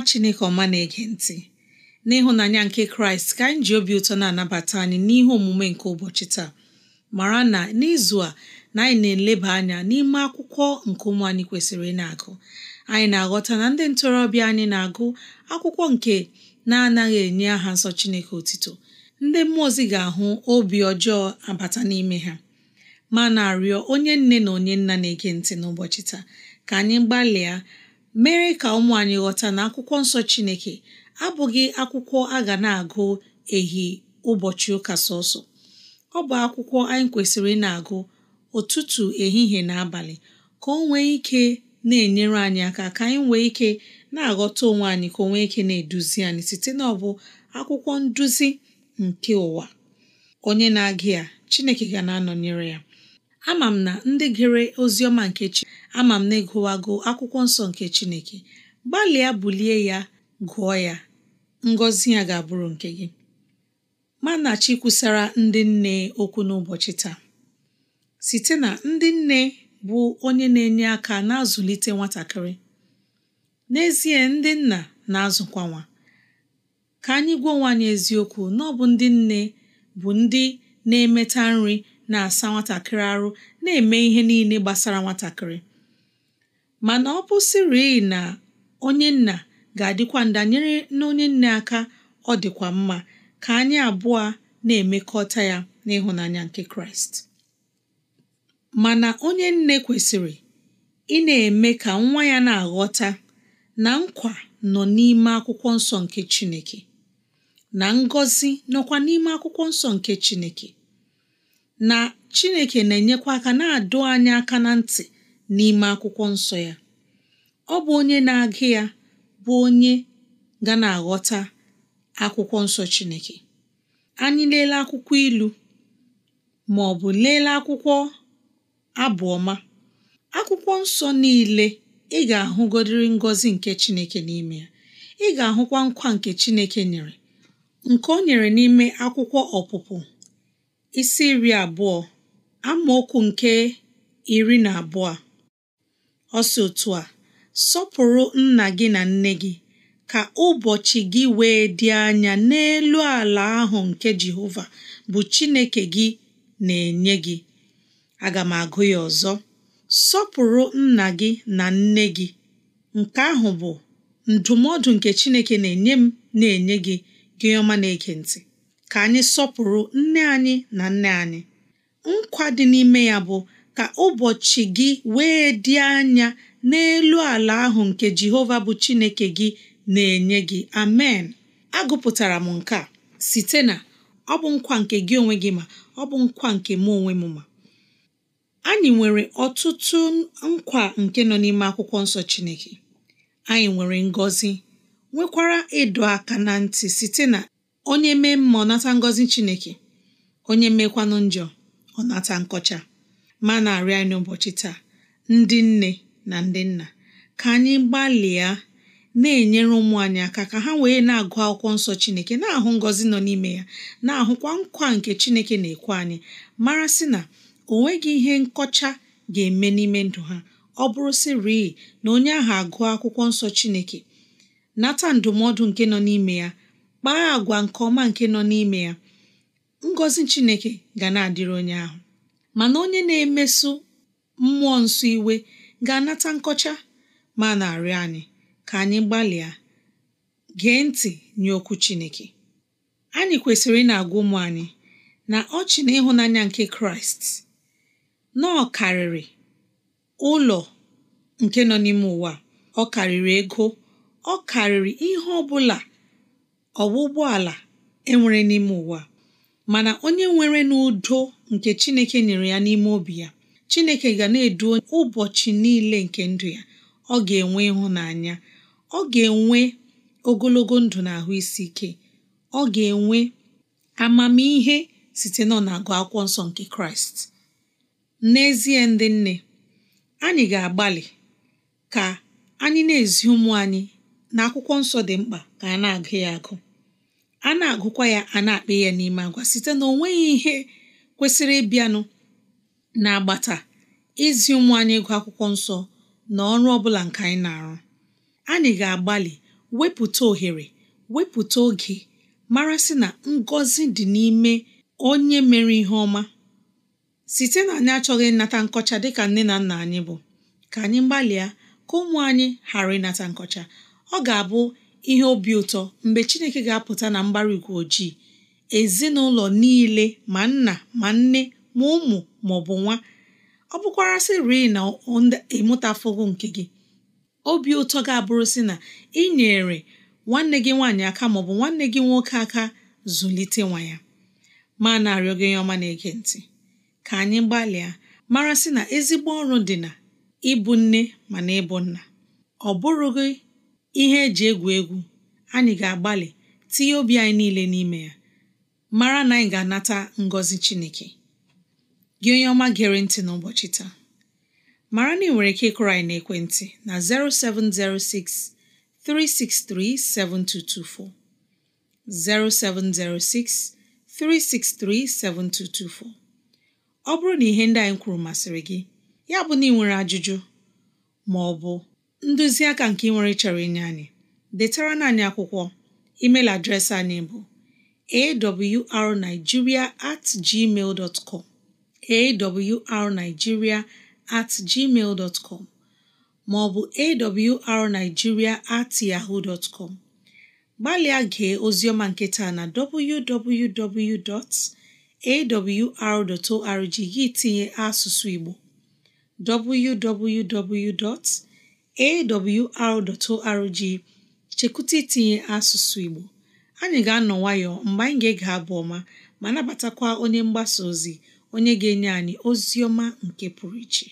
nwa chineke ọma na-ege ntị n'ịhụnanya nke kraịst ka anyị ji obi ụtọ na-anabata anyị n'ihe omume nke ụbọchị taa mara na n'izu a na anyị na-eleba anya n'ime akwụkwọ nke ụmụ anyị kwesịrị ị na-agụ anyị na-aghọta na ndị ntorobịa anyị na-agụ akwụkwọ nke na-anaghị enye aha nsọ chineke otito ndị mmụọ ozi ga-ahụ obi ọjọọ abata n'ime ha ma na-arịọ onye nne na onye nna na-ege ntị n'ụbọchị taa ka anyị gbalịa mere ka ụmụ anyị ghọta na akwụkwọ nsọ Chineke abụghị akwụkwọ a ga na-agụ ehi ụbọchị ụka sọsọ ọ bụ akwụkwọ anyị kwesịrị na-agụ ụtụtụ ehihie na abalị ka o nwee ike na-enyere anyị aka ka anyị nwee ike na-aghọta onwe anyị ka o nwee ike na-eduzi anyị site na bụ akwụkwọ nduzi nke ụwa onye na-agụ ya Chineke ga na-anọnyere ya ama m na ndị gere oziọma nke chi ama m na ịgụwago akwụkwọ nsọ nke chineke gbalịa bulie ya gụọ ya ngọzi ya ga-abụrụ nke gị mana chi kwusara ndị nne okwu n'ụbọchị taa site na ndị nne bụ onye na-enye aka na-azụlite nwatakịrị n'ezie ndị nna na-azụkwa nwa ka anyị gwa onwe eziokwu na ọ bụ ndị nne bụ ndị na-emeta nri na-asa nwatakịrị arụ na-eme ihe niile gbasara nwatakịrị mana ọ bụsịrị na onye nna ga-adịkwa ndanyere na onye nne aka ọ dịkwa mma ka anyị abụọ na-emekọta ya n'ịhụnanya nke Kraịst mana onye nne kwesịrị ị na-eme ka nwa ya na-aghọta na nkwa nọ n'ime akwụkwọ nsọ nke Chineke na ngọzi nọkwa n'ime akwụkwọ nsọ nke Chineke na chineke na-enyekwa aka na-adụ anyị aka na ntị n'ime akwụkwọ nsọ ya ọ bụ onye na-agụ ya bụ onye ga na-aghọta akwụkwọ nsọ chineke anyị lelee akwụkwọ ilu ma ọ bụ lelee akwụkwọ abụọma akwụkwọ nsọ niile ị ga-ahụgodiri ngọzi nke chineke n'ime ya ị ga-ahụkwa nkwa nke chineke nyere nke o nyere n'ime akwụkwọ ọpụpụ isi iri abụọ amaokwu nke iri na abụọ ọ otu a sọpụrụ nna gị na nne gị ka ụbọchị gị wee dị anya n'elu ala ahụ nke Jehova bụ Chineke gị na-enye gị aga m agụ ya ọzọ sọpụrụ nna gị na nne gị nke ahụ bụ ndụmọdụ nke Chineke na-enye m na-enye gị gị na-ege ka anyị sọpụrụ nne anyị na nne anyị nkwa dị n'ime ya bụ ka ụbọchị gị wee dị anya n'elu ala ahụ nke Jehova bụ Chineke gị na-enye gị amen agụpụtara m nke a site na ọ bụ nkwa nke gị onwe gị ma ọ bụ nkwa nke m onwe m ma anyị nwere ọtụtụ nkwa nke nọ n'ime akwụkwọ nsọ Chineke anyị nwere ngọzi nwekwara ịdọ aka na ntị site na onye mee mma ọ nata ngọzi chineke onye mekwanụ njọ ọ nata nkọcha ma na arịa anyị ụbọchị taa ndị nne na ndị nna ka anyị gbalịa na-enyere ụmụ anyị aka ka ha wee na-agụ akwụkwọ nsọ chineke na-ahụ ngọzi nọ n'ime ya na-ahụkwa nkwa nke chineke na-ekwe anyị mara sị na o nweghị ihe nkọcha ga-eme n'ime ndụ ha ọ bụrụ sị sịrị na onye ahụ agụọ akwụkwọ nsọ chineke nata ndụmọdụ nke nọ n'ime ya kpaa agwa nke ọma nke nọ n'ime ya ngọzi chineke ga na-adịrị onye ahụ mana onye na-emeso mmụọ nsọ iwe ga-anata nkọcha ma na-arịọ anyị ka anyị gbalịa gee ntị nye okwu chineke anyị kwesịrị ị na-agwa ụmụ anyị na ọchị na ịhụnanya nke kraịst na karịrị ụlọ nke nọ n'ime ụwa ọ karịrị ego ọ karịrị ihe ọ bụla ọwa ụgbọala enwere n'ime ụwa mana onye nwere n'udo nke chineke nyere ya n'ime obi ya chineke ga na-edu ụbọchị niile nke ndụ ya ọ ga-enwe ịhụnanya ọ ga-enwe ogologo ndụ na ahụ isi ike ọ ga-enwe amamihe site nọ na-agụ akwụkwọ nsọ nke kraịst n'ezie ndị nne anyị ga-agbalị ka anyị na-ezi ụmụ anyị na akwụkwọ nsọ dị mkpa ka a na-agụ ya agụ a na-agụkwa ya a na-akpa ya n'ime agwa site na onweghị ihe kwesịrị ịbịanụ na-agbata izi ụmụ anyị ịgụ akwụkwọ nsọ na ọrụ ọbụla nke anyị na-arụ anyị ga-agbalị wepụta ohere wepụta oge mara na ngọzi dị n'ime onye mere ihe ọma site na anyị achọghị ịnata nkọcha dịka nne na nna anyị bụ ka anyị gbalịa ka ụmụ anyị ghara ịnata nkọcha ọ ga-abụ ihe obi ụtọ mgbe Chineke ga-apụta na mbara igwe ojii ezinụlọ niile ma nna ma nne ma ụmụ ma ọ bụ nwa ọ bụkwara sịrị na ịmụtafogo nke gị obi ụtọ ga-abụrụ si na ị nyere nwanne gị nwaanyị aka ma ọ bụ nwanne gị nwoke aka zụlite nwa ya ma na-arịọ gị ọma na-ege ntị ka anyị gbalịa mara sị na ezigbo ọrụ dị na ịbụ nne ma na ịbụ nna ọ bụrụ ihe eji egwu egwu anyị ga-agbalị tinye obi anyị niile n'ime ya mara na anyị ga-anata ngọzi Chineke gị onye ọma gere ntị n'ụbọchị taa mara na ị nwere ike ịkụrụ anyị n'ekwentị na 0706 363 0706 363 7224 ọ bụrụ na ihe ndị anyị kwuru masịrị gị ya bụ na ị nwere ajụjụ ma ọ bụ aka nke ị nwere chọrọ inye anyị detara na akwụkwọ email adreesị anyị bụ awrnigeria at gmail dot com awrnigeria at gmail dot com maọbụ awrnigeria at yahoo dot com gbalịa gee oziọma nketa na www.awr.org gị tinye asụsụ Igbo www. awr.org chekwụta itinye asụsụ Igbo anyị ga-anọ nwayọọ mgbe anyị ga-ege abụ ọma ma nabatakwa onye mgbasa ozi onye ga-enye anyị ozi ọma nke pụrụ iche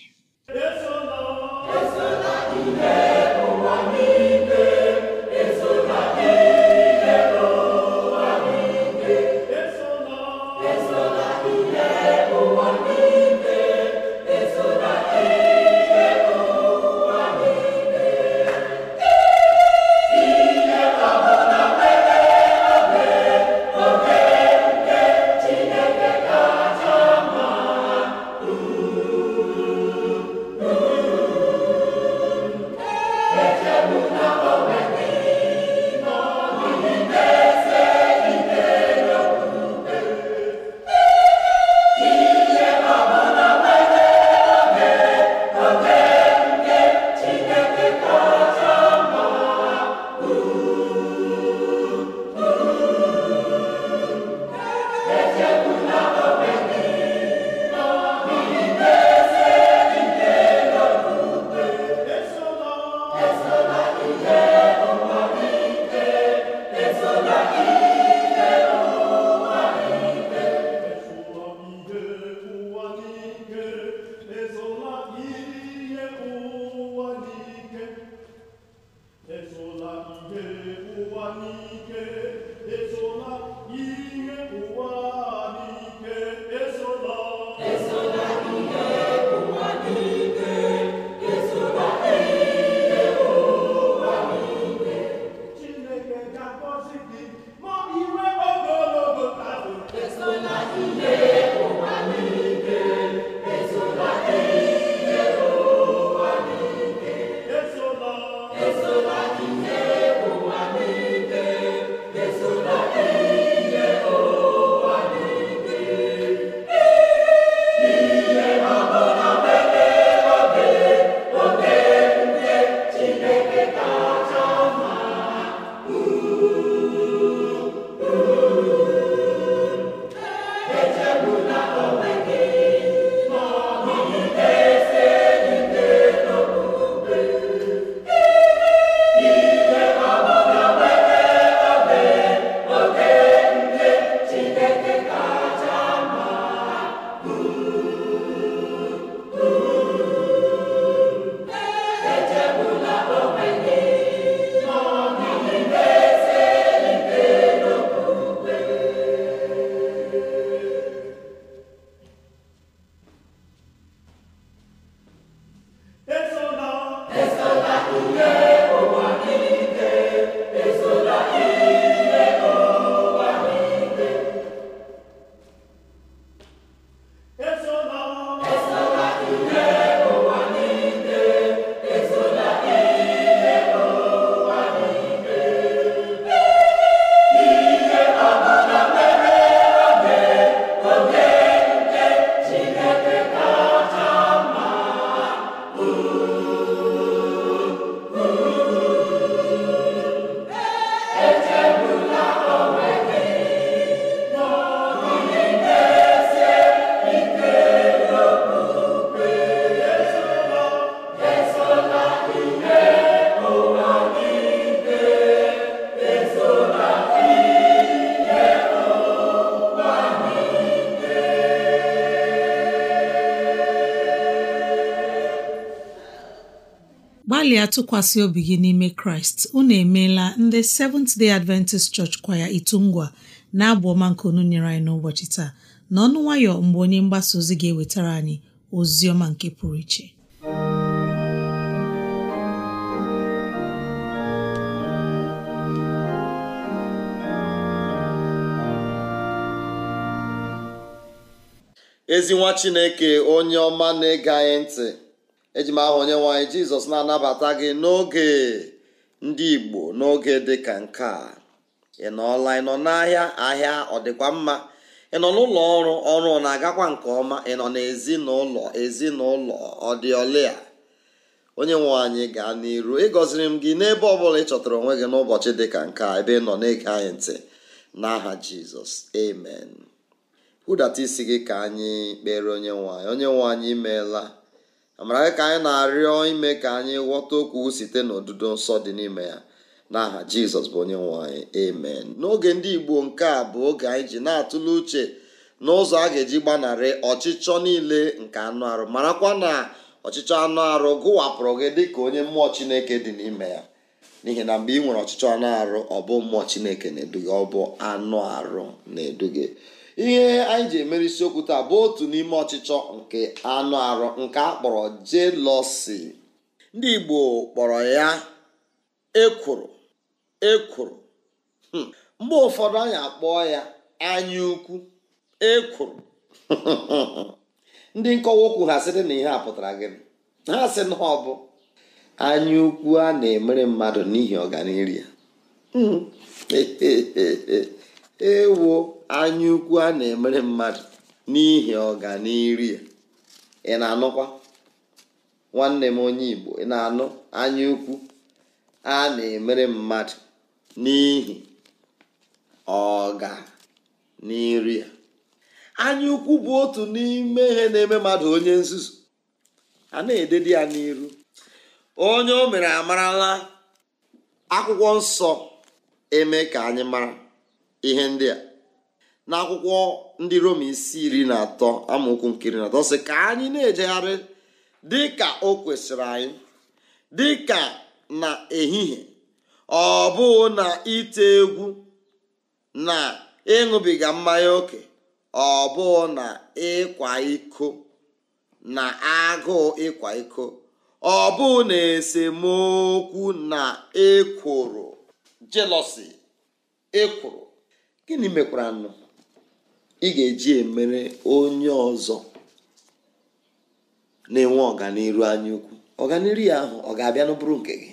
ya tụkwasị obi gị n'ime kraịst unu emeela ndị Seventh Day Adventist Church kwaya itungwa na-abụ ọma nke unu nyere anyị n'ụbọchị taa n'ọnụ nwayọ mgbe onye mgbasa ozi ga-ewetara anyị ozi ọma nke pụrụ iche ezi nwa chineke onye ọma na-ege anyị ntị eji m aha onye nwanyị jizọs na-anabata gị n'oge ndị igbo n'oge dị ka nke a ị nọọla ị nọ n'ahịa ahịa ọ dịkwa mma ị nọ n'ụlọ ọrụ ọrụ na-agakwa nke ọma ị nọ n'ezinụlọ ezinụlọ ọdịọla dị onye nwe anyị gaa n'iru ịgọziri m gị n'ebe ọ bụla ị chọtara onwe gị n'ụbọchị dị ka nke a ebe ị nọ na-ege anyị ntị n'aha jizọs amen hụdata isi gị ka anyị kpere onye nwe anyị onye nwe anyị imeela amara ka anyị na-arịọ ime ka anyị ghọta okwu site n'odudo nsọ dị n'ime ya n'aha jizọs bụ onye nwe anyị amen n'oge ndị igbo nke a bụ oge anyị ji na-atụle uche n'ụzọ a ga-eji gbanarị ọchịchọ niile nke anụ arụ marakwa na ọchịchọ anụ arụ gụwapụrụ gị dị ka onye mmụọ chineke dị n'ime ya n'ihi na mgbe ị nwere ọchịchọ anụ arụ ọ bụ mmụọ chineke na-eduga ọ bụ anụ arụ na-eduga ihe anyị ji emere isiokwu taa bụ otu n'ime ọchịchọ nke anụ arụ nke a kpọrọ jelọsi ndị igbo kpọrọ ya ekwuru ekwuru hmm. mgbe ụfọdụ anyị kpọọ ya anya ukwu ekworo ndị nkọwa okwu ha sịrị na ihe a pụtara gị ha sị na ọ bụ anya ukwu a na-emere mmadụ n'ihi ọganihu ya hmm. ewoo anya ukwu a na-emere mmadụ n'ihi ọganiru ya ị na-anụkwa nwanne m onye igbo ị na-anụ anya ukwu a na-emere mmadụ n'ihi ọganiru ya anya ukwu bụ otu n'ime ihe na-eme mmadụ onye nzuzu a na-ededi ya n'iru onye o mere amarala akwụkwọ nsọ eme ka anyị mara ihe ndị a n'akwụkwọ ndị roma isi iri na atọ amaokwu nke iri na atọ sị ka anyị na-ejegharị dịka o kwesịrị anyị dị ka na ehihie ọ bụghị na ite egwu na ịṅụbiga mmanya ókè ọ bụghị na ịkwa iko na agụụ ịkwa iko ọ bụghị na esemokwu na ekworo jelosi ekworo gịnị mekwara nụ ị ga-eji emere onye ọzọ na-enwe ọganiru anya ukwu ọganiru ya ahụ ọ ga-abịa n'ụbụrụ nke gị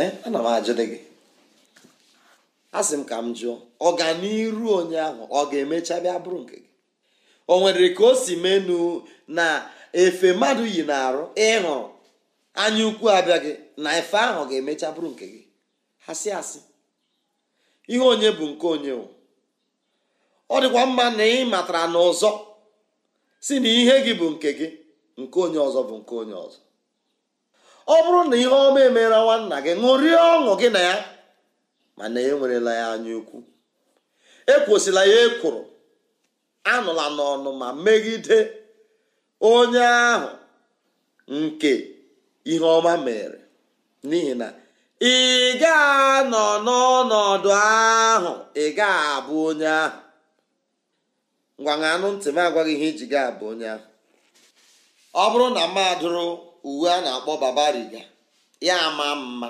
ee eh, ana m ajụdị gị asị m ka m jụọ ọganiru onye ahụ ọ ga-emecha bịa bụrụ nke gị o nwere ka o si menu na efe mmadụ yi na-arụ ịhụrụ anya ukwu gị na efe ahụ ga-emecha bụrụ nke gị asị asị ihe onye bụ nke onye ọ dịkwa mma na ị matara na ọzọ si na ihe gị bụ nke gị nke onye ọzọ bụ nke onye ọzọ ọ bụrụ na ihe ọma emere nwanna gị ṅụrie ọṅụ gị na ya mana enwerela ya anya ukwu ekwosila ya ekwuru anụla n'ọnụ ma megide onye ahụ nke ihe ọma mere n'ihi na ị ga-anọ n'ọnọdụ ahụ ị ga-abụ onye ahụ ngwa ṅaa anụ ntị m agwaghị ihe iji gị abụ onye ahụ ọ bụrụ na mmadụrụ uwe a na-akpọ babariga ya ama mma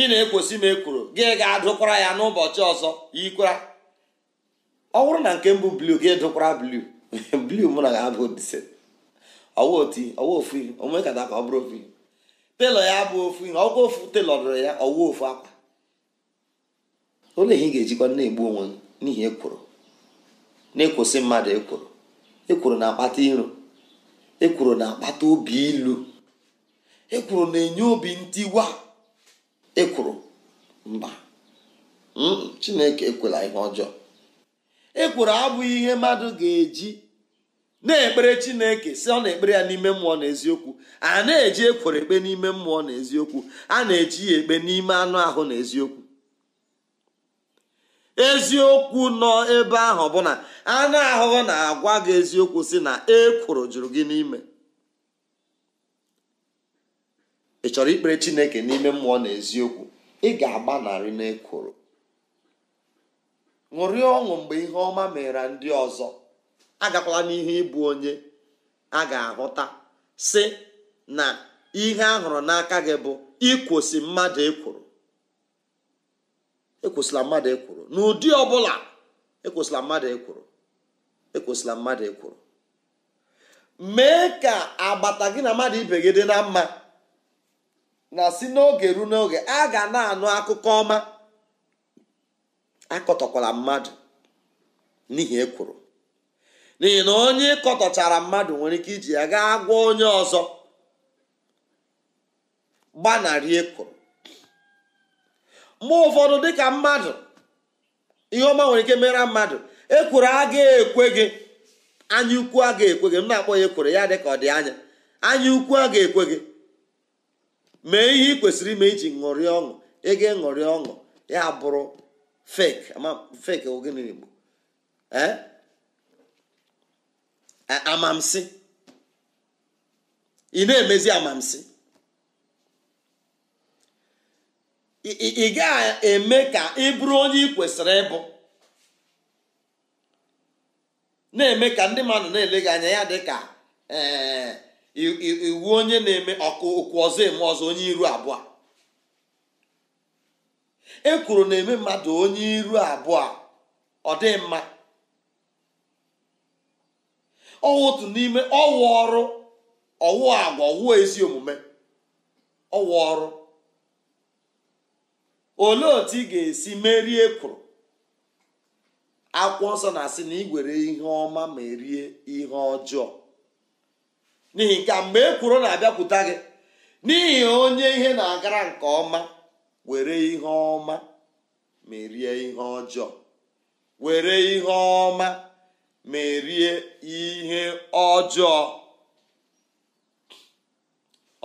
ị na-ekwesị m ekworo gị ga-adụkwara ya n'ụbọchị ọzọ yikwara ọ bụrụ na nke mbụ blu gị dụkwara blu blu mụ na ya abụ dise ọwa oti ọwa ofu onwe ka ọ bụrụ ofu telọ ya bụ ofu ihe ọkwa ofu telọ dụrụ ya ọwa ofu akwa olee ihe ị ga-ejikwa na-egbu onwe n'ihi ekworo na-ekwosị mmadụ ekworo ekwuru na-akpata iro ekwuru na-akpata obi ilu ekwuru na-enye obi ntiwa ekwuru mba hmm, chineke ekwela ihe ọjọọ Ekwuru abụghị ihe mmadụ ga-eji na-ekpere chineke si ọ na-ekpere ya n'ime mmụọ na eziokwu a na-eji ekworo ekpe n'ime mmụọ na eziokwu a na-eji ya ekpe n'ime anụ ahụ na eziokwu eziokwu nọ ebe ahụ bụ na anụ ahụhụ na-agwa gị eziokwu si na e ekworo jụrụ gị n'ime ị chọrọ ikpere chineke n'ime mmụọ na eziokwu ị ga-agbanarị n'ekworo ṅụrịa ọṅụ mgbe ihe ọma mere ndị ọzọ agakwala n'ihe ịbụ onye a ga-ahụta si na ihe a hụrụ n'aka gị bụ ikwosi mmadụ ekworo ekwesịla mmadụ ekwuru n'ụdị ọbụla ekwesịla mmadụ ekwuru ekwesịla mmadụ ekwuru mee ka agbata gị na mmadụ ibe gị dị na mma na si n'oge ruo n'oge a ga na-anụ akụkọ ọma akọtọkwala mmadụ n'ihi ekwuru n'ihi na onye kọtọchara mmadụ nwere ike iji ya gaa gwa onye ọzọ gbanarị ekwuru. mgbe ụfọdụ dịka mmadụ ihe ọma nwere ike mere mmadụ ekworo aga ekwe gị anya ukwu agaghị ekwe gị m na-akpọ ya ekworo ya dịka ọ dị anya anya ukwu agaghị ekwe gị mee ihe ị kwesịrị ime iji ṅụrịa ọṅụ ego ṅụrịa ọṅụ ya bụrụ fake ogene igbo eh? eh, amamsi ị na-emezi amamsi ị ga-eme ka ị bụrụ onye ị kwesịrị ịbụ na-eme ka ndị mmadụ na-ele anya ya dị ka eh, iwu onye na-eme ọkụ okwu ọzọ eme ọzọ onye iru abụọ e kwuru na-eme mmadụ onye iru abụọ ọ dị mma ọwụ otu n'ime ọwụ ọrụ ọwụ agwa ọwụ ezi omume ọwụ ọrụ olee otu ị ga-esi merie ekworo akwụkwọ nsọ na-asị na igwere ihe ọma ma erie ihe ọjọọ n'ihi ka mgbe ekworo na-abịakwuta gị n'ihi onye ihe na-agara nke ọma were ihe ọma merie ihe ọjọọ were ihe ọma ma ihe ọjọọ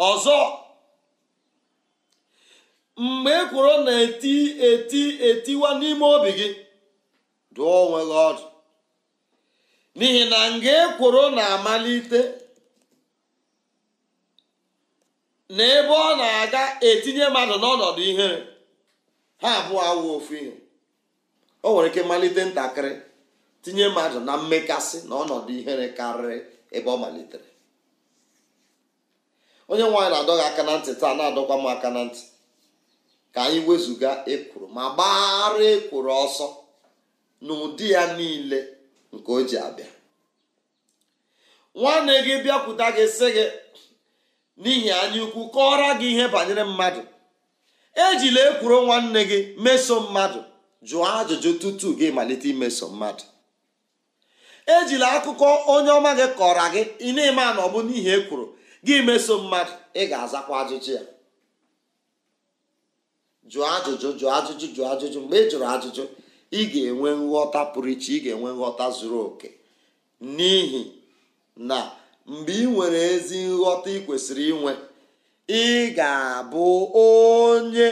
ọzọ mgbe ekworo na-eti eti etiwa n'ime obi gị dụọ onwe gị ọdụ n'ihi na nga ekworo na-amalite na ebe ọ na-aga etinye mmadụ n'ọnọdụ ihere ha abụọ awụ ofu ihe o nwere ike malite ntakịrị tinye mmadụ na mmekasị na ọnọdụ ihere karịrị ebe ọ malitere onye nwaanyị na adọghị aka na ntị taa na-adọkwa m aka na ntị ka anyị wezụga ekworo ma gbara ekworo ọsọ n'ụdị ya niile nke o ji abịa nwanne gị bịakwute gị sị gị n'ihi anya ukwu kọọrọ gị ihe banyere mmadụ ejila ekworo nwanne gị meso mmadụ jụọ ajụjụ tutu gị malite imeso mmadụ ejila akụkọ onye ọma gị kọrọ gị ị na-eme na ọ bụ n'ihi ekworo gị meso mmadụ ị ga-azakwa ajụjụ ya jụọ ajụjụ jụọ ajụjụ jụọ ajụjụ mgbe ị e jụrụ ajụjụ ị ga-enwe nghọta pụrụ iche ị ga-enwe nghọta zuru oke n'ihi na mgbe ị nwere ezi nghọta ị kwesịrị inwe ị ga-abụ onye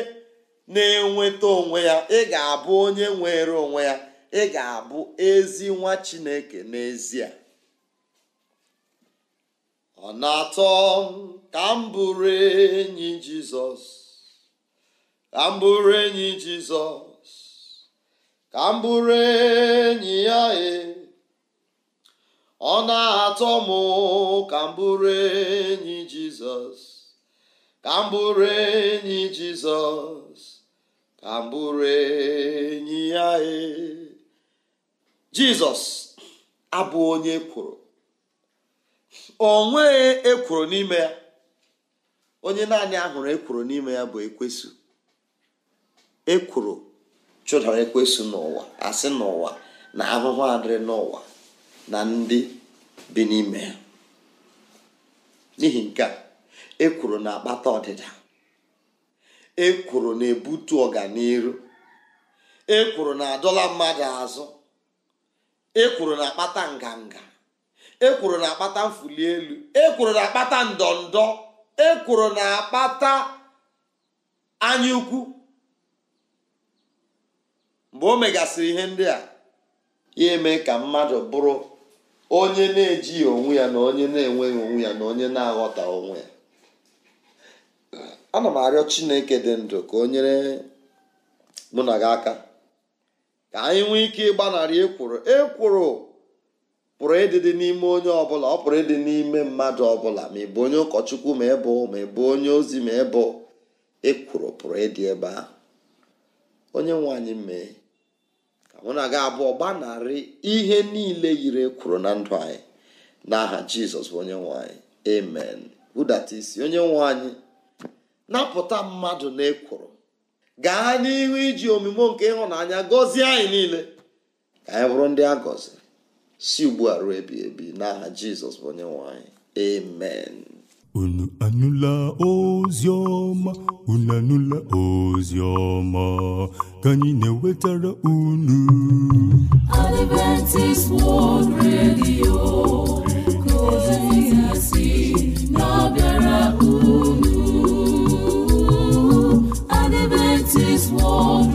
na-enweta onwe ya ị ga-abụ onye nwere onwe ya ị ga-abụ ezi nwa chineke n'ezie ọ na-atọ ka m bụrụ enyi jizọs ka m enyi jizọs ka m enyi ya e. ọ na-atọ m ka m enyi jizọs ka m bụrụ enyi jizọs ka m enyi ya e jizọs abụ onye ekworo o nweghị ekworo n'ime ya onye naanị ahụrụ ekworo n'ime ya bụ ekwesu ekwuru chụdara ekwesị n'ụwa asị n'ụwa na ahụhụ adịrị n'ụwa na ndị bi n'ime ya n'ihi nke a ekwuru na-akpata ọdịda ekwuru na-ebutu ọganiru ekwuru na-adọla mmadụ azụ ekwuru na-akpata nganga ekwuru na-akpata mfụli elu ekworo na-akpata ndọndọ ekwuru na-akpata anya mgbe o megasịrị ihe ndị a ya eme ka mmadụ bụrụ onye na-ejighị onwe ya na onye na-enweghị onwe ya na onye na-aghọta onwe ya ana m arịọ chineke dị ndụ ka o nyere mụ na gị aka ka anyị nwee ike ịgbanarị e ekworo pụrụ ịdịdị n'ime onye ọbụla ọ pụrụ ịdị n'ime mmadụ ọbụla ma ị bụ onye ụkọchukwu ma ị bụ ma ị bụ onye ozi ma ị bụ ekworo pụrụ ịdị ebe ahụ onye nwe anyị mee mụ na gị abụọ gbanarị ihe niile yiri e kwuru na ndụ anyị n'aha jizọs bụ onye nwanyị amen budata isi onye nwe anyị napụta mmadụ na ekwuru gaa n'ihu iji omume nke ịhụnanya gọzie anyị niile ka anyị bụrụ ndị a gọziri si ugbu a ruo ebi ebi n'aha jizọs bụ onye nwanyị amen unu anụla ozi ọma unu anụla ozi ọma ka anyị na-ewetara unu Adventist World Redio ka ozi si na-abịara unu Adventist World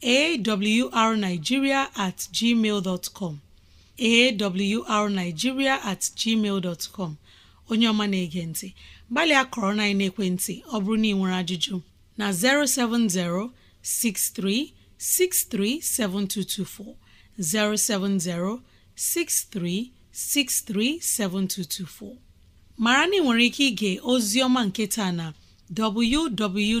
A w r Naijiria at gmail dot com A at gmail dot com Onyeọma na-ege nti, gbalịa korona na-ekwentị, ọ bụrụ na ị nwere ajụjụ, na-07063 637224 070 6363 7224. maara na ị nwere ike ịga ozi ọma nke taa na www